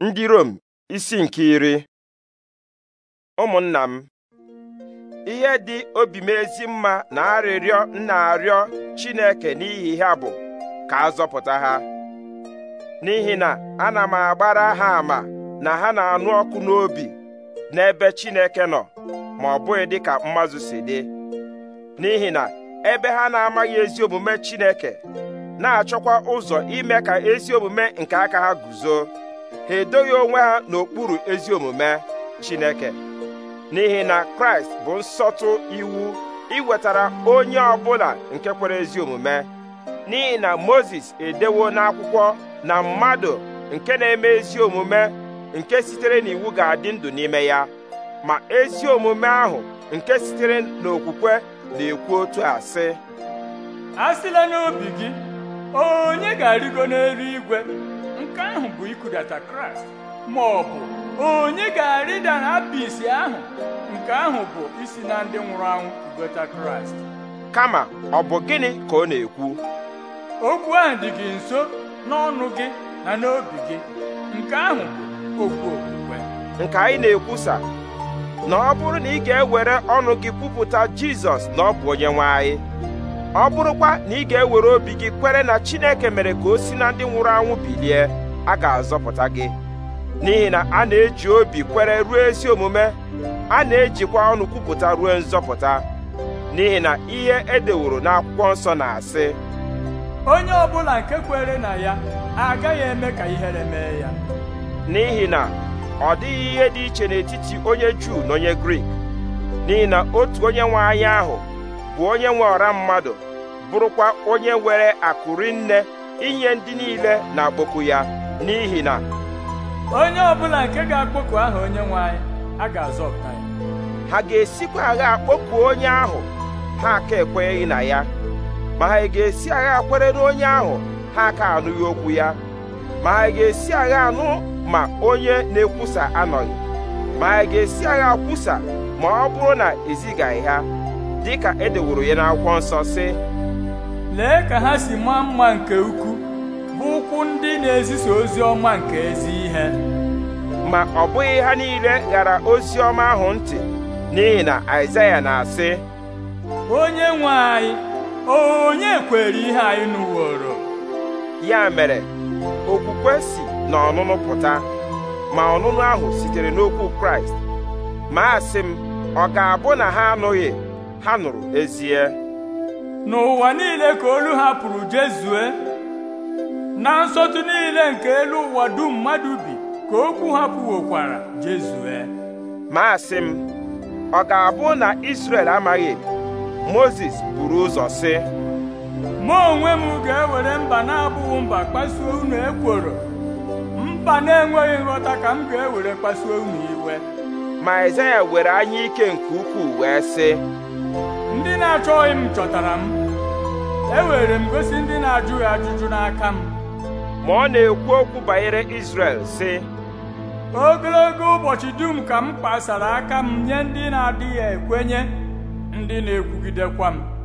ndị Rom isi nke iri ụmụnna m ihe dị obi m ezi mma na arịrịọ nna arịọ Chineke n'ihi ha bụ ka a zọpụta ha n'ihi na ana m agbara ha ama na ha na-anụ ọkụ n'obi n'ebe Chineke nọ ma ọ bụghị dị ka mmazụ si dị n'ihi na ebe ha na-amaghị ezi omume Chineke na-achọkwa ụzọ ime ka ezi omume nke aka ha guzo ha edoghị onwe ha n'okpuru ezi omume Chineke n'ihi na Kraịst bụ nsọtụ iwu iwetara onye ọbụla nke kwere ezi omume n'ihi na mozes edewo n'akwụkwọ na mmadụ nke na-eme ezi omume nke sitere n'iwu ga-adị ndụ n'ime ya ma ezi omume ahụ nke sitere n'okwukwe na-ekwu otu a sị n'obi gị onye ga-arịgo igwe. nke ahụ bụ ịkụdata kraịst ma ọ bụ onye ga-arịda na apịsị ahụ nke ahụ bụ isi na ndị nwụrụ anwụ kụgota kraịst kama ọ bụ gịnị ka ọ na-ekwu okwu ahụ dị gị nso n'ọnụ gị na n'obi gị nke ahụ bụ okwu okwukwe nke anyị na-ekwusa na ọ bụrụ na ị ga-ewere ọnụ gị kwupụta jizọs na ọ bụ onye nwe ọ bụrụkwa na ị ga-ewere obi gị kwere na chineke mere ka o si na ndị nwụrụ anwụ bilie a ga-azọpụta gị n'ihi na a na-eji obi kwere ruo ezi omume a na-ejikwa ọnụ kwupụta ruo nzọpụta n'ihi na ihe edeworo n'akwụkwọ nsọ na-asị onye ọbụla nke kwere na ya agaghị eme ka ihere mee ya n'ihi na ọ dịghị ihe dị iche n'etiti onye Juu na onye Grik n'ihi na otu onye nwe anya ahụ bụ onye nwe ọra mmadụ bụrụkwa onye nwere akụrinne rinne inye ndị niile na-akpọku ya n'ihi na onye ọbụla nke ga-akpọku aha onye nwe anyị a ga-azọpụta ya ha ga-esikwa agha akpọku onye ahụ ha aka ekwenyeghị na ya ma ha ga-esi agha na onye ahụ ha aka anụghị okwu ya ma ha ga-esi agha anụ ma onye na-ekwusa anọghị ma ha ga-esi agha kwusa ma ọ bụrụ na ezigaghị ha dịka edeworo ya n'akwụkwọ nsọ sị lee ka ha si maa mma nke ukwuu! bụ ụkwụ ndị na-ezisa ozi ọma nke ezi ihe ma ọ bụghị ha niile ghara ozi ọma ahụ ntị n'ihi na Aịzaya na-asị onye nwe anyị onye kwere ihe anyị nụworo ya mere okwukwe si na ọnụnụ pụta ma ọnụnụ ahụ sitere n'okwu Kraịst ma asị m ọ ga-abụ na ha anụghị ha nụrụ ezie n'ụwa niile ka olu ha jezue na nsọtụ niile nke elu ụwa dum mmadụ bi ka okwu ha pụwokwara jezue Maasị m ọ ga-abụ na isrel amaghị Mozis buru ụzọ sị mụ onwe m ga-ewere mba na-abụghị mba kpasuo unu ekworo mba na-enweghị nghọta ka m ga-ewere kpasuo unu iwe ma Aịzaya were anya ike nke ukwuu wee sị ndị na-achọghị m chọtara m ewere m gosi ndị na-ajụghị ajụjụ n'aka m ma ọ na-ekwu okwu banyere Izrel si. ogologo ụbọchị dum ka m kpasara aka m nye ndị na-adịghị ekwenye ndị na-ekwugidekwa m